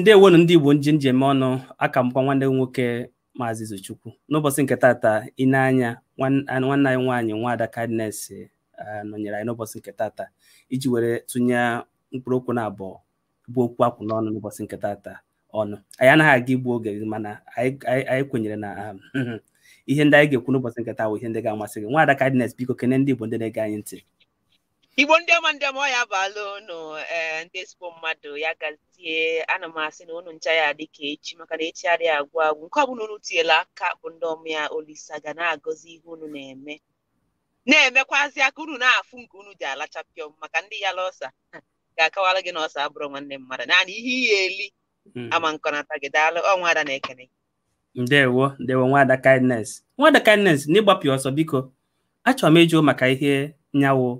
ndewonu ndị igbo nji njem ọnụ aka mbụkwa nwanne m nwoke maazị izochukwu n'ụbọchị nke tata ịneanya nwanne anyị nwaanyị nwaada Kindness nọnyere anyị n'ụbọchị nke tata iji were tụnye mkpụrụ okwu na abụọ bụ okwu akwụ n'ọnụ n'ụbọchị nke tata ọnụ anyị anaghị aga igbu oge mana anyị kwenyere na um, ihe ndị anyị ga-ekwu n'ụbọchị nke taa bụ ihe ndị ga-amasị gị nwada Kindness biko kene ndị igbo ndị na-ege anyị ntị igbo ndị ọma ndị ọma ọ ya abalụ ụnụ ee ndị ezigbo mmadụ ya gazie ana m asị na ụnụ ncha ya dị ka echi maka na echi adịghị agwụ agwụ nke ọbụla unu tinyela aka bụ ndị ọma ya olisa ga na-agọzi ihe ụnụ na-eme na-emekwazi aka unu na-afụ nke unu ji alachapịọ maka ndị ya lọsa ga akọwara gị na ọsa abụrụ nwanne mmadụ naanị ihe ihe eli hmm. ama nkọnata gị daalụ ọnwa ada na-ekene ndewo ndewo nwada kindness nwada kindness na ọsọ biko achọrọ m ịjụ maka ihe nyawo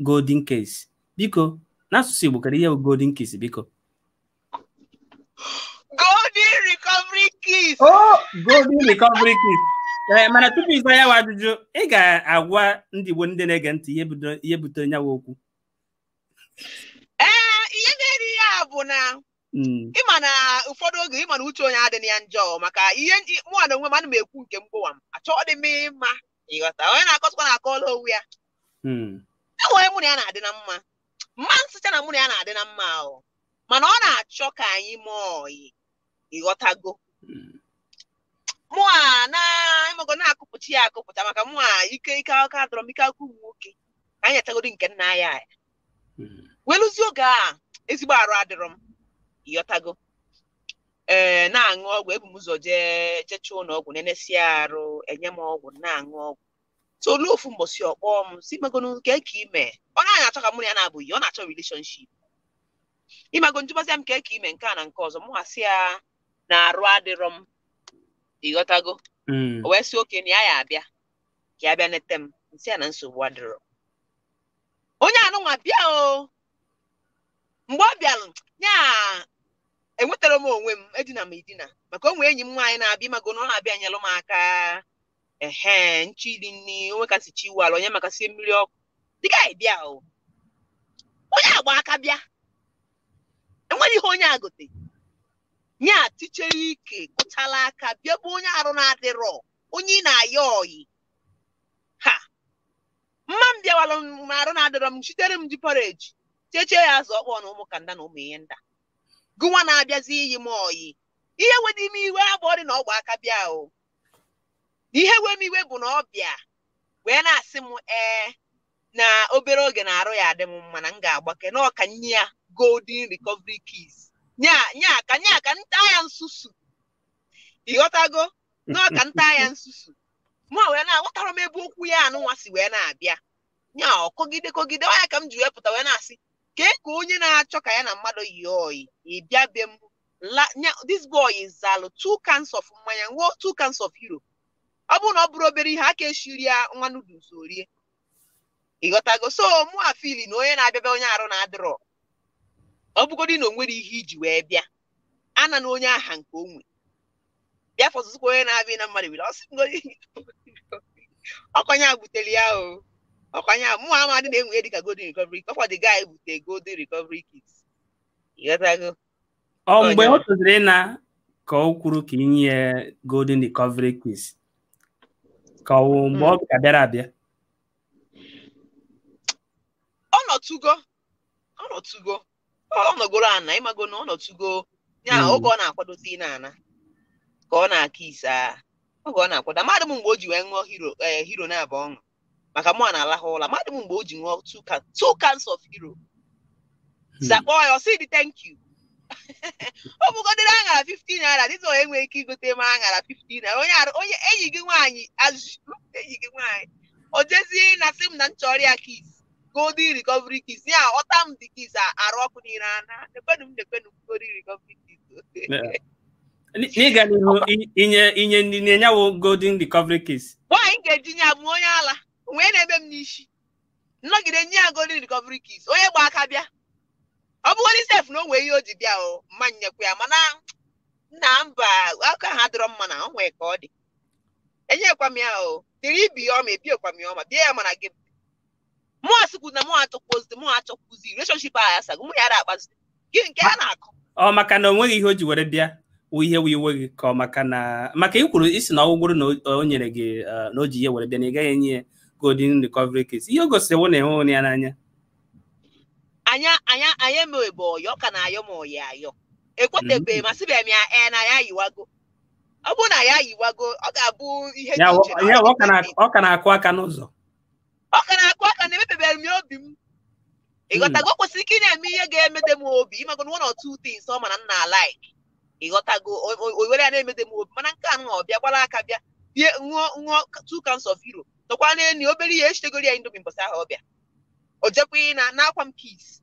golden case biko n'asụsụ Igbo kara ihe bụ golden case biko golden recovery case oh golden recovery case ee eh, mana tupu ịza ya ajụjụ ị ga-agwa ndị Igbo ndị na-ege ntị ihe butere nyawa okwu ee eh, ihe na-eri ya bụ na hmm. ịma na ụfọdụ oge ịma na uche onye adịghị ya njọ maka ihe mụa na onwe m ana m ekwu nke mgbowa m achọọ dị mma ịghọta onye na-akọsịkwa na-akọọla onwe ya hmm. enwere mụ na ya na-adị na mma mma nsụcha na mụ na ya na-adị na mma ahụ mana ọ na-achọ ka anyị mụọ ọyị ịghọtago mụ a na ịmago na-akụpụta ya akụpụta maka mụ a ike ike aka dọrọ m ike aka ụmụ nwoke ka anyị atagodi nke nna ya welụzie oge a ezigbo arụ adịrọ m ịghọtago ee na-aṅụ ọgwụ ebu m ụzọ jee jechụọ ụlọ ọgwụ nenesia arụ enye m ọgwụ na-aṅụ ọgwụ so ofu mgbọsi ọkpọ m si magonu nke ka ime ọ naghị achọ ka mụ na ya na-abụghị ọ na-achọ relationship ịmago njụbazịa m nke ka ime nke a na nke ọzọ mụ asị ya na arụ adịrọ m ịghọtago mm. o wee sị oke na ya ya abịa ka ya bịa nete m nsị ya na nsogbu adịrọ onye anụnwa bịa o mgbe ọ bịalụ ya enwetara m onwe m edina m edina maka onwe enyi m nwaanyị na-abịa ịmago na ọ na-abịa nyelụ m aka ehe nchili nni onwe kasị chi iwu onye makasie mmiri ọkụ dịka bịa o onye agba aka bịa enwere ihe onye agote nye atichere ike gụchala aka bịa bụ onye arụ na-adịrọ onye ị na-ayọ oyi ha mma m bịawara m arụ na-adịrọ m chitere m ji pọreji chechie ya azụ ọkpọ na ụmụ nda na ụmụ ihe nda Gụwa na-abịazi iyi m oyi ihe wedi ime iwe dị na ọgba aka bịa o ihe wem iwe bụ na ọbịa wee na-asị m ee na obere oge na-arụ ya adị m mma na m ga-agbake na ọka nye ya golden recovery keys nya nya ka nya ka nta ya nsusu ịghọtago na ọka nta ya nsusu ma wee na-aghọtara m ebe okwu ya anụnwa si wee na-abịa nya ọkọgide kọgide ọ ka m ji wee pụta wee na-asị kee ka onye na-achọ ka ya na mmadụ yi oyi ịbịa be m this boy is zalu two cans of mmanya nwụọ two cans of Europe ọ bụrụ na ọ bụrụ obere ihe aka eshiri ya nwa noodles orie ịghọtago so mụ afili na onye na-abịa onye arụ na-adịrọ ọ bụgodị na o nwere ihe iji wee bịa ana na onye aha nke onwe bịa fọzụzụkwa onye na-abịa na mmadụ were ọkọnya butere ya o ọkọnya mụ amadị na-enwe ya dịka golden recovery kọfọ dị gaa ebute golden recovery kits ịghọtago ọ mgbe ọ tụziri na ka ọ kwuru ka inye golden recovery kits ka ọ mgbe mm-hmm. ọ ga-abịara abịa ọ nọtụgo ọ nọtụgo ọ nọgoro ana ịmago na ọ nọtụgo ya mm. oge ọ na-akwadozi n'ana ka ọ na-aka ise oge ọ na-akwado amadị m mgbe o ji wee ṅụọ hero eh, hero na-abụ ọṅụ maka mụ na-alahụ ụla amadị m mgbe o ji ṅụọ two cans of hero hmm. zakpọọ ya ọ sị dị thank you ọ bụgodịrị aṅara 15 naira dịta onye nwere ike igote m aṅara 15 naira onye onye enyi gị nwaanyị azụrụ enyi gị nwaanyị o jezie na sị m na m chọrọ ya kis golden recovery kis ya ọta m dị kis arụ ọkụ niile ana nekwenu m nekwenu golden recovery kis n'ịga n'ihu inye inye ndị na-enyewo golden recovery kis nwaanyị ga-eji nye abụ onye ala wee na eme m n'isi nnọgide nye ya golden recovery kis onye gba aka bịa ọ bụgodị sef na o nwee ihe o ji bịa o mma nyekwa ya mana nna mba aka ha dịrọ mma na onwe ka ọ dị enyekwa m ya o ibi ya ọma ebiekwa m ya ọma bịa ya mana gị mụ asịkwu na mụ achọkwuzi mụ achọkwuzi releshonship a ya sago mụ ya akpazi gị nke ha na akụ ọ maka na o nweghị ihe o ji were bịa ihe wee iwe gị ka ọ maka na maka ikwuru isi na ọgwụgwụrụ na o nyere gị eh, na o ji ihe were bịa na ị gaghị enye ya golden recovery case ihe o gosiri wụ na ịhụ ya n'anya anya anya anya emebe ọyọ ka na-ayọ mm. ma ọyọ ayọ ekwetebe masịbịa m ya ee na ya yiwago ọ bụrụ na ya yiwago ọ ga-abụ ihe ọ ka na-akụ aka n'ụzọ ọ ka na-akụ aka na emepebere m obi m ị mm. o kwesịrị ike ị na-eme ihe ga-emede m obi ịmago na one or two things ọ mana nna alaik ịghọtago owere ya na-emede m obi mana nke a nụ bịa gbara aka bịa bie ṅụọ nwụọ two cans of hero tọkwa na enyi obere ihe echtegoro ya indomi mbọsị ahụ ọbịa o jekwa na na akwa m peace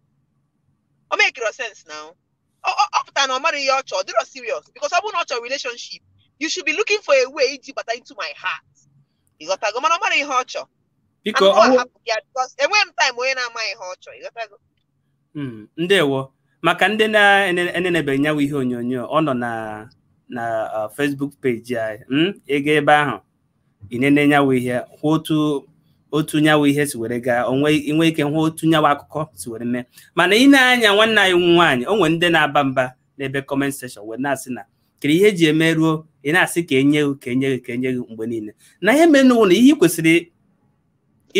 ọ mekiro sense now ọ pụtara na ọ mara ihe ọ chọọ dịrọ serious because ọ bụrụ na ọ chọrọ relationship you should be looking for a way iji bata into my heart ịghọtago mana ọ mara ihe ọ chọọ enweghị m taịm onye na-ama ihe ọ chọọ ịghọtago hmm, ndewo maka ndị na-enenebe nyawa ihe onyonyo ọ nọ na na uh, Facebook peji anyị hmm, ego ebe ahụ ị nene enenyawa ihe kwụ otu otu nyawa ihe si were gaa onwe ike hụ otu nyawa akụkọ si were mee mana ị na-anya nwanne anyị nwaanyị o nwere ndị na-aba mba n'ebe kọment sekshọn wee na-asị na kiri ihe eji eme ruo ị na-asị ka enye gị ka enye gị ka enye gị mgbe niile na ihe menụwo na ihe ị kwesịrị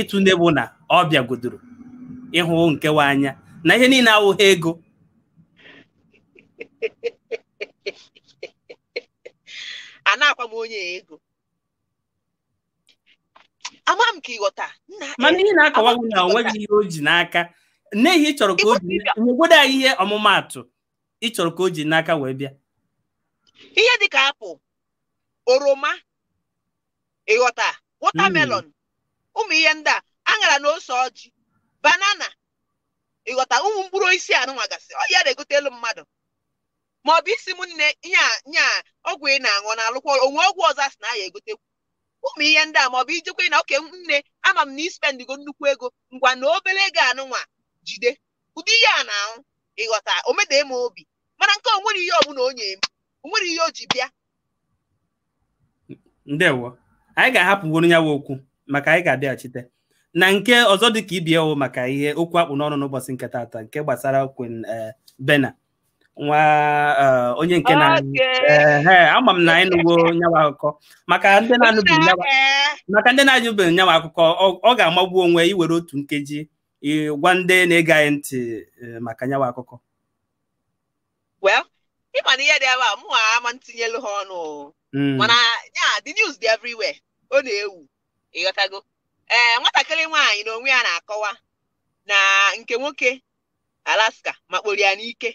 ịtụ n'ebu na ọ bịagodoro ịhụ nkewa anya na ihe niile awụghị ego a na-akwa m onye ego ama m ka ịghọta e, mana ihe na-akọwa gị na onweghị ihe o ji n'aka n'ihi ịchọrọ ka o anyị ihe ọmụmaatụ ịchọrọ ka o ji n'aka wee bịa ihe dị ka apụl oroma ịghọta watermelon hmm. ụmụ ihe ndị a aṅara na ose ọjị banana ịghọta ụmụ mkpụrụ osisi anụnwa gasị ọ ya na-egotelu mmadụ ma ọ bụ isi m nne nya a ọgwụ ị na-aṅụ na-alụkwa onwe ọgwụ ọzọ a sị na aya egotekwu ụmụ ihe ndị a maọbụ ijekwa na oke nne ama m na ispendigo nnukwu ego ngwa na obere ego anụnwa jide ụdị ihe a na-ahụ ịghọta omedee m obi mana nke onwere ihe ọbụla onye m onwere ihe o ji bịa ndewo anyị ga-ahapụgoro ya okwu maka anyị ga-abịaghachite na nke ọzọ dị ka ibie maka ihe okwu akpụ n'ọnụ n'ụbọchị nke taata nke gbasara Queen eh, Bena nwa eh, onye nke na ama m na anyị nụwo nyawa akụkọ maka ndị na-anụbeghị maka ndị na nyawa akụkọ ọ ga-amagbu onwe iwere otu nkeji gwa ndị na-ege anyị ntị eh, maka nyawa akụkọ ịma na ihe dị ebe a mụ ama ntinyelu ha ọnụ hmm. mana ya the news dị everywhere ọ na-ewu ịghọtago ee eh, nwatakịrị nwaanyị na onwe ya na-akọwa na nke nwoke Alaska makporo ya n'ike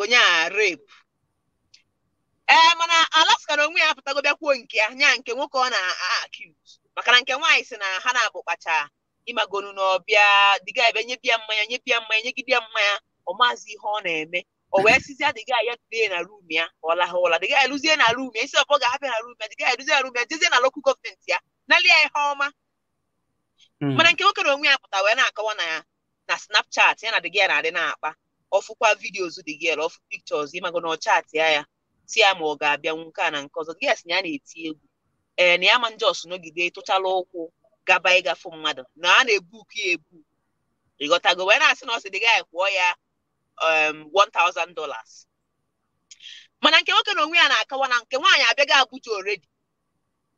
onye a repu ee eh, mana alaska na onwe ya apụtago bịakwuo nke ya nya nke nwoke ọ na-akiz maka na nke nwaanyị si na ha na-abụ kpacha ịmagonu na ọbịa dịga ebe nyebia mmanya nyebia mmanya nyegidea mmanya ọ maazị ihe ọ na-eme o wee sizia dịga ya dee na rum ya ọ laha ụla dịga eluzie na rum ya isi ọpọ ga-abịa na rum ya dịga eluzie na rum ya jezie na lokal gọọmenti ya nalị ya ihe ọma hmm. mana nke nwoke na onwe ya pụta wee na-akọwa na ya na snapchat ya na dịga ya na-adị na-akpa ọfụkwa vidios dị gị ọfụ pikchọs ịmago na ọ chatịa ya si ya ma ọ ga-abịanwu nke a na nke ọzọ gị na ya na-eti egwu ee eh, na ya ma njọs nọgide tụchala ụkwụ gaba ịgafu mmadụ na a na-ebuku ya ebu ịghọtago wee na-asị na ọ sị dị gị kwụọ ya $1000 um, mana nke nwoke na onwe ya na-akawa na nke nwaanyị abịaghị Abuja oredi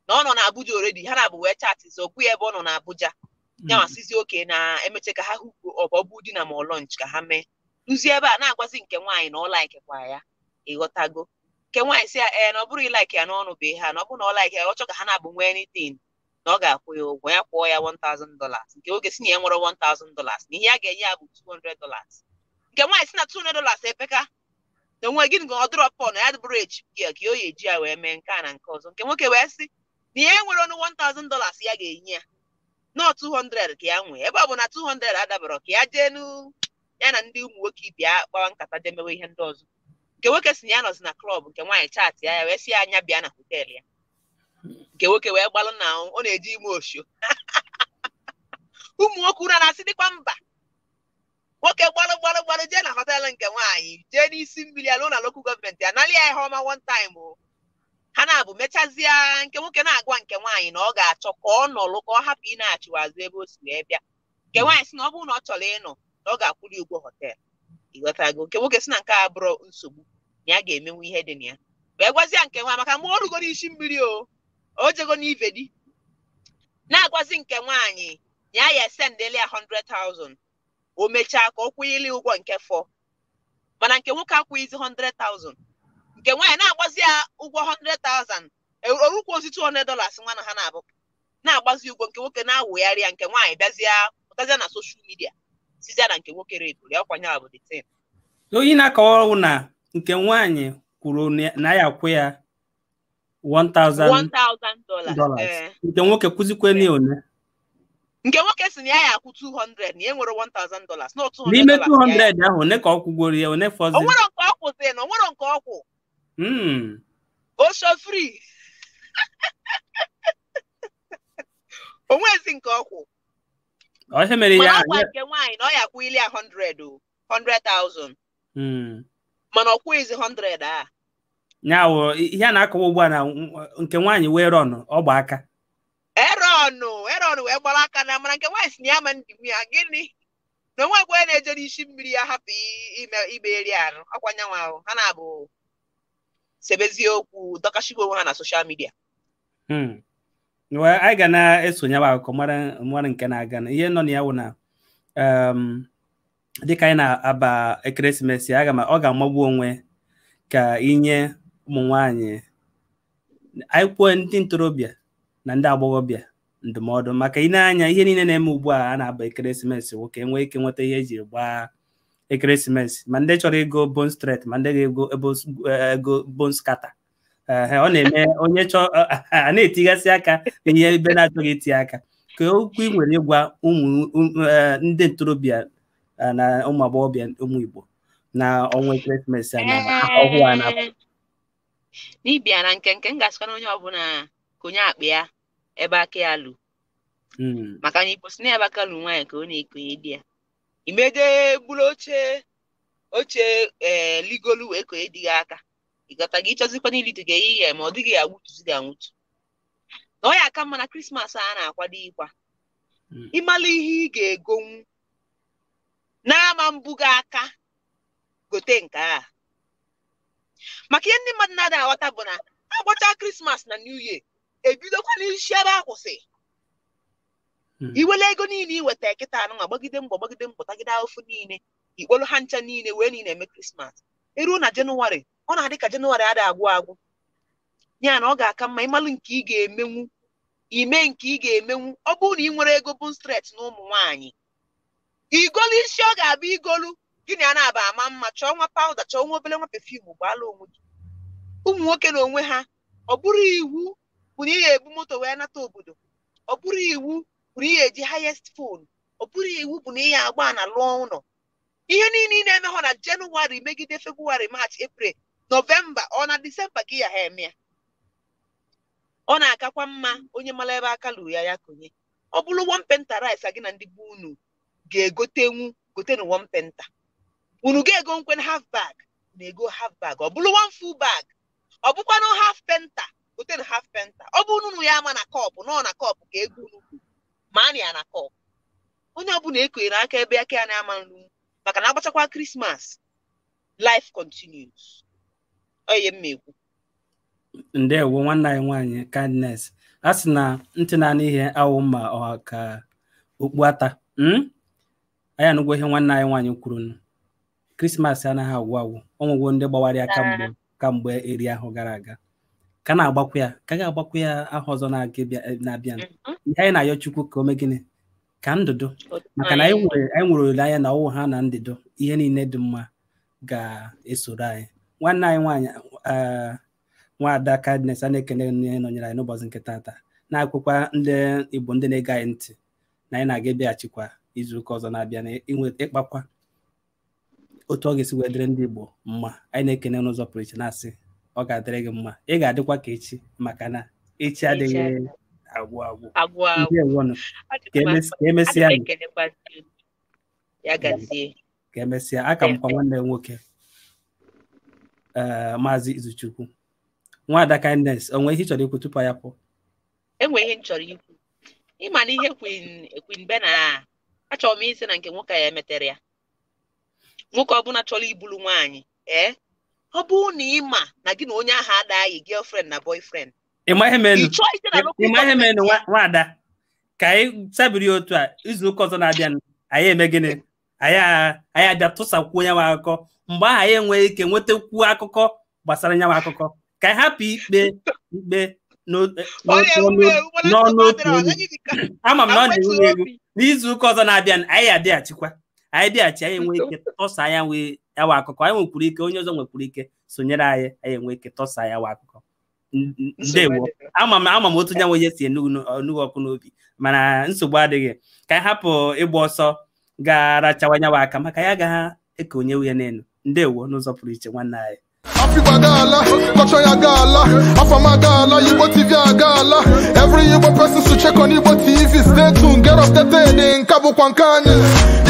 na ọ nọ na Abuja oredi ha na-abụ wee chatịzi okwu ya ebe ọ nọ na Abuja ya masịzi hmm. oke na emeche ka ha hụkwuo ọ bụ di na ma ọlọnch ka ha mee ruzie ebe a na-agwazi nke nwaanyị na ọ laikikwa ya ịghọtago nke nwaanyị si ya ee na ọ bụrụ ịlaik ya n'ọnụ be ha na ọ bụrụ na ọ laik ya ọ chọ ka ha na-abụ nwee anything na ọ ga-akwụ ya ụgwọ ya kwụọ ya $1000 nke oge si na ya nwere $1000 na ihe ya ga-enye ya bụ $200 nke nwaanyị si na $200 epeka na onwe gịnị ga ọ dụrọpọ na ya dịbụrụ eji ya ka o ya eji ya wee mee nke a na nke ọzọ nke nwoke wee sị na ihe nwere ọnụ $1000 ya ga-enye ya nọọ 200 ka ya nwee ebe ọ bụ na 200 adabara ka ya jee n'u ya na ndị ụmụ nwoke bịa kpawa nkata demewe ihe ndị ọzọ nke nwoke si na ya nọzi na klọb nke nwaanyị chaatị ya ya wee si ya anya bịa na họteelụ ya nke nwoke wee gbalụ na ọ na-eji ime oshio. ụmụ nwoke ụra na-asị dịkwa mba nwoke gbalụ gbalụ gbalụ jee na hotel nke nwaanyị jee n'isi mmiri alụ na lokal gọọmenti ya nalị ya ihe ọma one time o ha na-abụ mechazie nke nwoke na-agwa nke nwaanyị na ọ ga-achọ ka ọ nọlụ ka ọ hapụ ị na-achịwazụ ebe o si wee bịa nke nwaanyị si na ọ bụrụ na ọ chọrọ ịnọ na ọ ga-akwụli ụgwọ họteelụ ịghọtago nke nwoke si na nke a bụrụ nsogbu na ya ga-emenwu ihe dị na ya wee gwazia nke nwa maka ma ọ rugoro isi mmiri o o jego n'ive di na-agwazi nke nwaanyị ya ya sendeli a 100,000 o mechaa ka ọ kwụnyeli ụgwọ nke fọ mana nke nwoke akwụghịzi 100,000 nke nwaanyị na-agbazi ya ụgwọ 100,000 orukwu ozi 200 dollars nwa na ha na-abụ na-agbazi ụgwọ nke nwoke na-awụgharị ya nke nwaanyị bịazịa pụtazịa na soshal midia sizie na nke nwoke regụrụ ya ọkwanye abụ dị same Oyi na-akọwa na nke nwaanyị kwuru na ya akwụ ya 1000 dollars eh. nke nwoke kwụzikwe na one nke nwoke si na ya ya akwụ 200 na e nwere 1000 dollars na 200 n'ime 200 ahụ one ka ọ kwụgoro ya one fọzi onwere nke ọ kwụzi na onwere nke ọ kwụ osho hmm. free onwezi nke ọ kwụ ihe mere ya akwa nke nwaanyị na ọ ya kwụ ili 100,000 mana ọ kwụghịzi 100 a nyawo ihe a na-akọwa ugbu a na nke nwaanyị wee rọnụ ọ gba aka erọnụ erọnụ wee gbara aka na mana nke nwaanyị si na ya ndị ya gịnị na onwe egwe na-eje n'isi mmiri ya hapụ ibe eri arụ ọkwa nyanwa ahụ ha na-abụ sebezie okwu dọkashigwe onwe ha na soshal midia hmm. anyị ga na-esonye akụkọ mara nke na-aga na ihe nọ na ya wụ na um, dịka anyị na-aba ekeresimesi aga m ọ ga-amagbu onwe ka inye ụmụ nwanyị anyị kwuo ndị ntorobịa na ndị agbọghọbịa ndụmọdụ maka ị na-anya ihe niile na-eme ugbu a a na-aba ekeresimesi nwoke nwee ike nweta ihe eji gbaa ekeresimesi ma ndị chọrọ ego bone straight ma ndị ga-ego ego kata. ọ na-eme onye chọọ a na etigasị aka ihe ebe na-achọghị iti aka ka okwu ị nwere ịgwa ụmụ um, eh, ndị ntorobịa na ụmụ agbọghọbịa ụmụ Igbo na ọnwa ekeresimesi a ọhụụ a na-apụ n'ibia na nke nke m ga na onye ọbụla ka onye akpa ya ebe aka ya lụ hmm. maka na ikposi na ebe aka lụ nwaanyị ka ọ na-ekonye di ya imede bụrụ oche oche ee eh, ligolu wee konye di gị aka Ị gata gị ịchọzikwa gị ihe ma ọ dịghị agwụtuzi gị anwụtu na ọ ya aka mma na krismas a na-akwado ịkwa hmm. ịmala ihe ị ga-egonwu n'ama mbuga aka gote nke a maka ihe ndị mmadụ na-ada aghọta bụ na agbachaa krismas na new year ebidokwa n'isi ebe akwụsị hmm. iwele ego niile iweta kịta anụnwa gbagide mgbọ gbagide mgbọ tagide ahụfụ niile ikpolu ha ncha niile wee niile eme krismas eruo na jenụwarị ọ na-adị ka jenụwarị ada agwụ agwụ ya na ọ ga-aka mma ịmalụ nke ị ga-emenwu ime nke ị ga-emenwu ọ bụrụ na ị nwere ego bụ stret na ụmụ nwaanyị igolu isi ọ ga abụ igolu gịnị a na-aba ama mma chọọ nwa pawuda chọọ nwa obere nwa pefum gbaala onwe gị ụmụ nwoke na onwe ha ọ bụrụ iwu bụ na ị ga-ebu moto wee nata obodo ọ bụrụ iwu bụ na ị ga-eji hayest fon, ọ bụrụ iwu bụ na ị ga-agba na lụọ ụlọ ihe niile ị na emeghọ na jenụwarị megide febrụwarị march eprel novemba ọ na disemba gị ya ha eme ya ọ na-akakwa mma onye mara ebe aka lụrụ ya ya konye ọ bụrụ wompenta rice gị na ndị bụ unu ga-egotenwu gotenụ penta unu ga-ego nkwen half bag na-ego half bag ọ bụrụ one full bag ọ bụkwanụ half penta gotenu haf penta ọ bụ unu ya ama na kọpụ nọ na kọpụ ka ego unu kwuru ma a na ya na kọpụ onye ọbụla ekonyere aka ebe aka ya na-ama nru maka na agbachakwa krismas life continues onye m ndewo nwanne anyị nwaanyị kindness a sị na ntị na-anụ ihe awụ ma ọ ka okpu ata hmm? anyị anụgwo ihe nwanne anyị nwaanyị kwuru krismas anaghị agwụ agwụ ọnwụgwo ndị gbawara ya kamgbe kamgbe eri ahụ gara aga ka na agbakwu ya ka ga agbakwu ya aha ọzọ eh, na-abịa mm-hmm. ihe anyị na-ayọ chukwu ka o mee gịnị ka ndụdụ maka na anyị nwere olileanya na ọwụ ha na ndịdo ihe niile dị mma ga-esoro anyị nwanne anyị nwaanyị nwaada Kindness a na-ekene nne nọnyere anyị n'ụbọchị nke taata na-akwụkwa ndị Igbo ndị na-ege anyị ntị na anyị na-aga ebeghachikwa izu ụka ọzọ na-abịa na ịkpakwa otu ọ ga-esi wee dịrị ndị Igbo mma anyị na-ekene n'ụzọ pụrụ iche na-asị ọ ga-adịrị gị mma ị ga-adịkwa ka echi maka na echi adịghị agwụ agwụ ka emesịa e aka e m kwa nwanne nwoke Eh, maazị izuchukwu nwada kindness onwe ihe ị chọrọ ikwu tupu ya pụọ Enweghị ihe m chọrọ ikwu ịma na ihe kwin kwin bena a achọrọ m isi na nke nwoke ya emetere ya nwoke ọbụla chọrọ ibulu nwaanyị ee eh? ọ bụrụ na ị ma na gị na onye ahụ adaghị girlfriend na boyfriend ịma ihe menu nwaada ka anyị sabiri otu a izu ụka ọzọ na-abịa anyị eme gịnị anyị abịa tụsakwuo nyanwe akụkọ mgbe ahụ anyị enweghị ike nwetakwuo akụkọ gbasara nyanwe akụkọ ka anyị hapụ ikpe ikpe n'ọnụotu otu onye ama m na ọ na-ewu ewu n'izu ụka ọzọ na-abịa anyị adịghachikwa anyị dịghachi anyị enwe ike tọsa ya nyawa akụkọ anyị nwekwuru ike onye ọzọ nwekwuru ike sonyere anyị anyị enwe ike tọsa ya nwa akụkọ ndewo ama m ama m otu nyanwe onye si enugu ọkụ n'obi mana nsogbu adịghị ka anyị hapụ ịgba ọsọ gaarachawanye aka maka ya gaha ekonyewu ya n'elu ndewo n'ụzọ pụrụ iche nwanne anyị Africa gala, culture ya gala, Afama gala, Igbo TV ya gala. Every Igbo person should check on Igbo TV. Stay tuned, get off the updated in Cabo Kwankani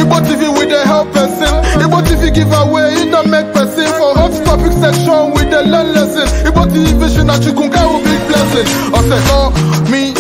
Igbo TV with the help person. Igbo TV giveaway, it don't make person. For hot topic section with the learn lesson. Igbo TV vision, Achukunka will be blessing. I said, oh, me